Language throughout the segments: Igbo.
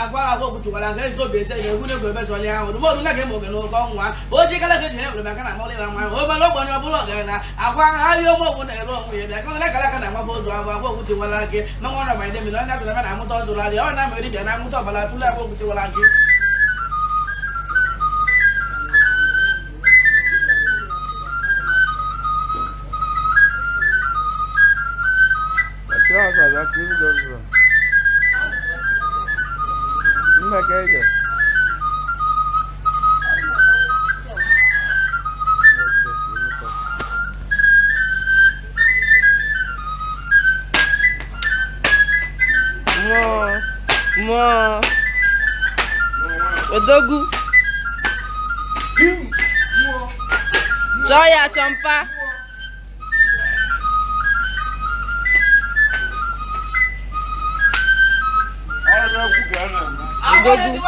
agwa agwa kpuchikwara nke ezi obi eze na egwu n'egwu ebe zọli ahụ dụmọdụ na ga oge n'oge ọnwa o ji ka eji na na amọlị nwa o ọbụla ọgaranya agwa ahịa ọmụ ọgwụ na-ere onwe ya bịa kọla kala na-agbaba ụzọ ahụ agwa gị ma nwa ọrụ ma ndị mmiri onye atụrụ na na-amụta ọdụrụ adị ọ na-ameri bịa na-amụta ọbara tụrụ agwa gị odogwu joya chompa dójú.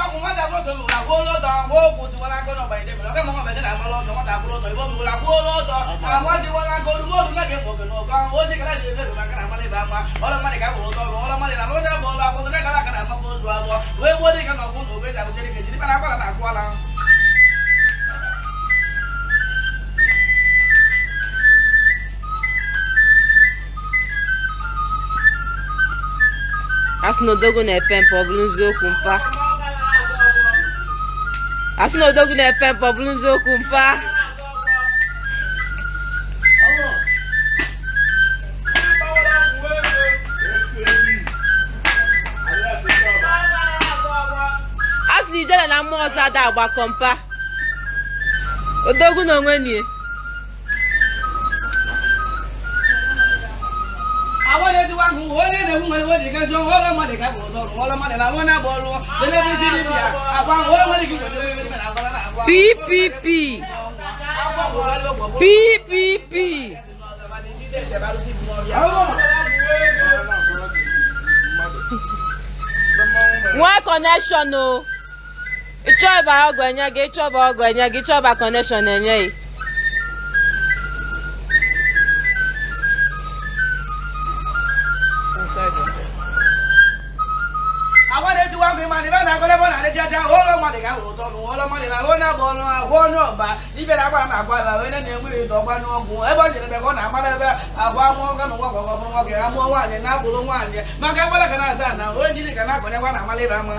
asinodogo na-epe mpe ọ bụrụ nziokwu mpa asị na odogwu na-epe mpọ ọ bụrụ nziokwu mpa asị na idela na mmụọ ọzọ ada agbakọ mpa odogwu na onwe nie na ọrụ ọrụ ọrụ ọrụ ọrụ ppp ppp nwee kọnekshọn o ịchọba ọgụ enye gị ịchọba ọgụ enye gị ịchọba kọnekshọn enye gị mmadụ ga-awụ ụtọ ọgwụ nwụọla mmadụ na ahụ na-agba ọnụ ahụ ọnụ ọba ibera agba ma agwa ala onye na-enweghị ụtọ ọgba n'ọgwụ ebe ọ jere ebe ọ na-agbara ebe abụ amụọ ga na ụwa gwọgọ bụrụ nwoke ya mụọ nwaanyị na-abụrụ nwaanyị maka agbara ka na-aza na onye jiri ka na-akwanye gwa na amala ebe ama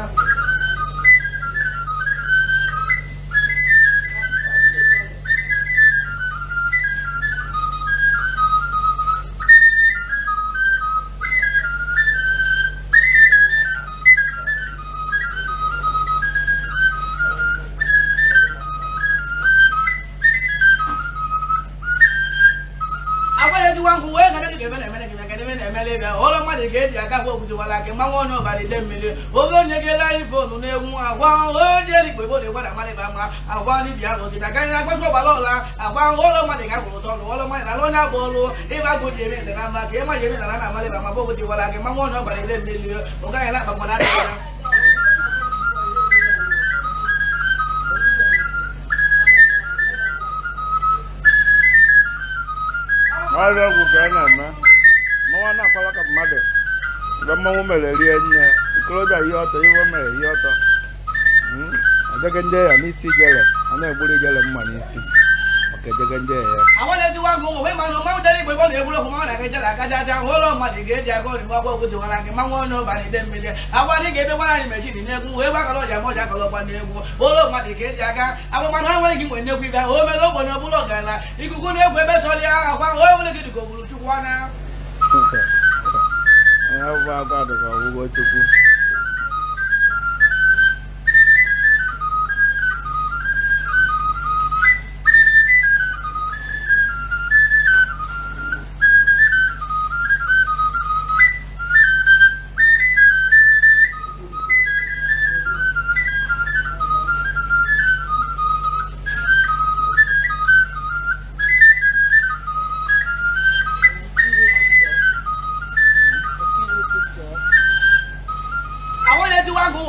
eji nwa nkwụ wee gana dịka emere emere gịna kedị emere emere ịbịa ụlọ mmadụ ga-eji aka agba okwuchi wala aka mmanwụ ọnụ ọbara ide mmiri oge onye gela anyị fonu na-egwu agwa oje dịkpa igbo na-egwada mmadụ ịba mma agwa ndị bịa na ozita karịa agbasa ọgbara ọla agwa ụlọ mmadụ ga-akwụrụ ụtọ ọrụ ụlọ mmadụ na alụ onye agba ọrụ ịba agụ ji eme ndana mma ka ịma ji eme ndana na amalị ba ma bụ okwuchi wala aka mmanwụ ọnụ ọbara ide mmiri ụgaghị na akpa mmadụ adịghị n'ọrịa ọgwụ ka a na-eme mmanwụ na-akpala ka mmadụ mgbe mmanwụ mere rie nne ikolobịa ihe ọtọ iwe mere ihe hmm? ọtọ adịghị ndị ya n'isi jere a na-egburu ijele mma n'isi gẹjẹgẹjẹ yẹ. àwọn ẹni tí wọn gun òwe máa ń máa ń tẹ́lẹ̀ ìpè bọ́ọ̀lù ewúrẹ́ fún máwọn àkẹ́jẹ́ làkájájá wọn lọ máa dìgé jẹ kó ní wọ́pọ̀ òkú ti wọn làkè máa wọn náà bá ní dẹ́mi jẹ àwọn ní gèdè wọn láti mẹ̀sìn nínú ẹkún òwe bákan lọ́jà mọ́jà kan lọ́pàá ní ẹkún ó lọ máa dìgé máa náà wọlé kíkọ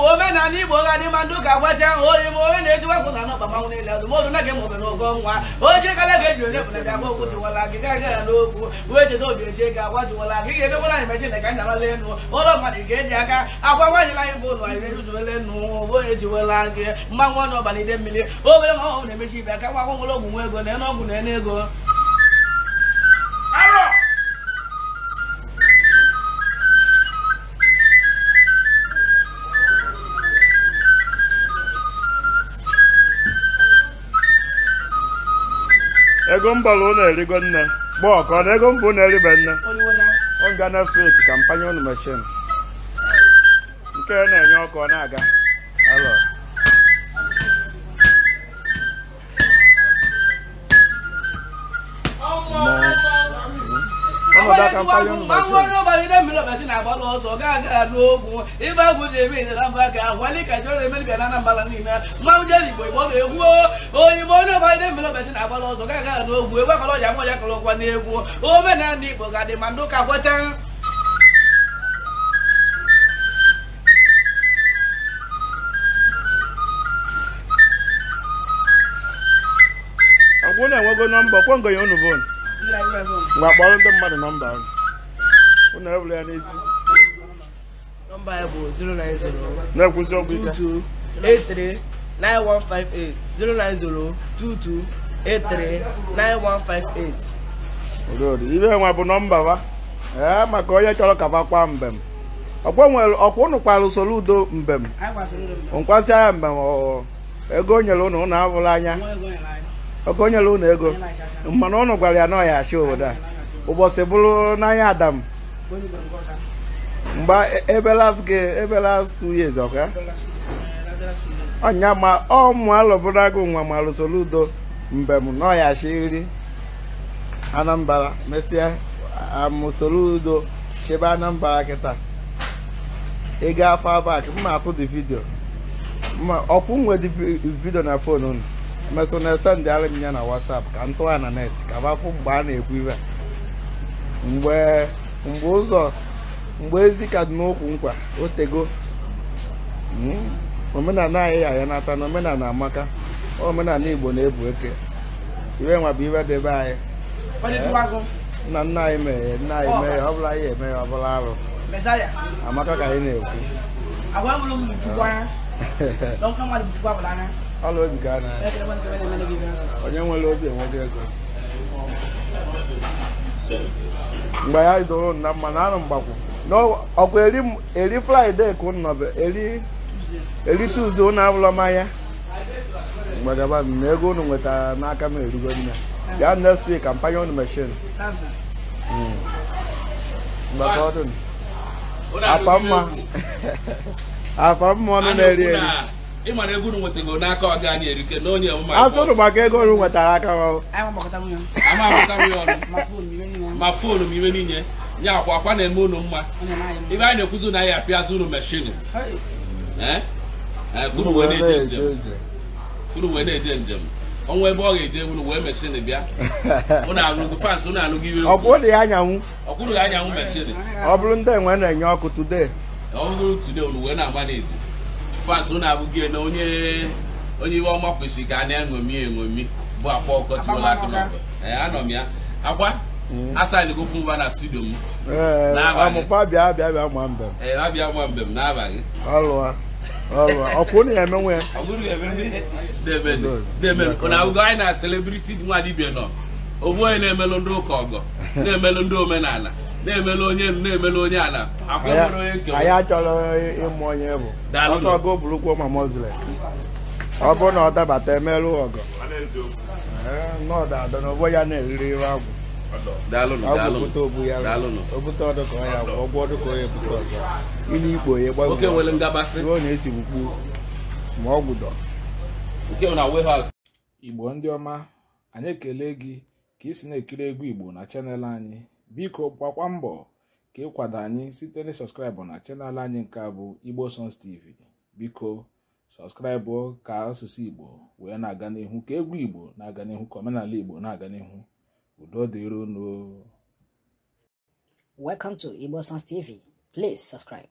omenala igbo gadị ma ndị ụka agbaja ahụ e onye m onye na-ejikwa kwụ na ọgbamanwụ niile azụmọdụ na gị maọbụ na ụgọ nwa onye kara ga-eji onye bụla bịa gba okwu jiwala gị gaa gara n'okwu wee jede obi eji ego agwa jiwala gị ga-emekwara anyị mechin ka anyị enu ụlọ mmadụ ga-eji aka agwa nwaanyị anyị bụ ụlọ anyị ejuzuola nụ onye jiwela gị mmanwụ ọnụ ọbalị ide mmiri obere ma ọ na-emechi ibe aka nwa akwụkwọ ọgwụ nwa ego na-ene ọgwụ na-ene ego ego mgbala na erigo nne gba ọkọ na ego mba na eribe nne oga na feki kampanya ụnụ mechin nke na-enye ọkụ ọ na-aga nọdụ aka mkpali ọnụ ma chọrọ ọbalị ndị mmiri ọbachị na-agbalụ ọsọ gaa aga n'ogwu ife agwụ ji eme ịdara mba ka akwali ka jere eme dibịa na anambra niile mmanwụ jere igbo igbo na egwu oyimbo onye ọbalị ndị mmiri ọbachị na-agbalụ ọsọ gaa aga n'ogwu ebe akọrọ ọja nwa ya kọrọ ọkwa n'egwu omenala igbo ga-adị ma ndị ụka kweta ọgwụ na-enwego nọmba ọkwọ ngọnye unu vonu mgbe kpọrọ ndị mmadụ nọmba ahụ ụnụ ya n'ezi na-ekwuzi ọgwụ ike 9158 09022839158 nwa bụ nọmba wa ee maka onye chọrọ ka kwa mbem ọkwa ụnụ kwara usoro udo mbem nkwasị agha mbem ego o nyere ụnụ ụnụ abụla anya ọka onyela ụnụ ego mana ụnụ gwara ya n'ọhịa achị obodo a ụbọchị bụrụ n'anya adam mgbe e, ebe last ebe last two years ọka ọnya ma ọmụ alụbụrụ agụ nwa ma lụsoro udo mbem na ọ ya achịrị anambra mesịa amụsoro udo chebe anambra kịta ego afọ abak mma apụ dị vidio ma ọkwụ nwedi vidio na fon unu emesịa na esendịara m ya na WhatsApp ka m tụwa na net ka bafụ mgbe a na-ekwu ibe mgbe mgbe ụzọ mgbe ezi ka dị n'okwu nkwa otego hmm? omenala anyị ya ya nata na omenala amaka omenala igbo na-ebu eke iwe nwa bụ iwe debe anyị nna eh, nna anyị mere nna anyị mere ọ bụla anyị eme ya ọ bụla arụ amaka ka anyị na-ekwu ọla obi ka a onye nwere obi enweghị ego mgbe ya idoro na mma na anụ mgbakwu ọkwa eri fraịde ka nnọbe eri tuuzde ụnụ abụla mmanya mgbadaba na ego unu nwetara n'aka m erugo nne gaa next week hmm. kampanya unu meshin afọ mma ọnụ na-eri eri ịmara ego unu nwetago n'aka ọga na erike na onye ọmụma asụrụ maka ego unu nwetara aka ma foonu m iwe niile nye akwa akwa na-eme unu mma ebe anyị na-ekwuzi na ya apịazụ unu unu wee na-eje njem ọnwa ebe ọ ga-eje unu wee meshin bịa unu fans iwe ọkwụrụ ya anyanwụ ya anyanwụ meshin ọ bụrụ ndị enwe na-enye ọkụ ọ bụrụ unu wee na-agba fans na abụghị na onye onye iwe ọma kwesịrị ka a na-eṅomi eṅomi bụ akwa ọkọchiwela ee anọ m ya akwa mm. asaịlị mba na studio m abịa gwa mbe n'abalị na anyị na celebrity nwa nọ onye na-emelụ ndị ụka ọgọ na-emelụ ndị omenala na-emela onye na-emela onye ala anyị achọrọ ịmụ onye bụ ọsọ ọgụ burukwu ma muslim ọ bụrụ na ọ dabata emerụ ọgụ n'ọdada na ya na-eriri ire agwụ ya ya ikpo ya na ma ọ igbo ndị ọma anyị ekele gị ka ị si na-ekiri egwu igbo na chanel anyị biko gbakwa mbọ ka ịkwado anyị site na sọskraịbụ na chanel anyị nke a bụ igbo tv biko sọskraịbụ ka asụsụ igbo wee na-aga n'ihu ka egwu igbo na-aga n'ihu ka omenala igbo na-aga n'ihu udo dịrị unu welcome to igbo please subscribe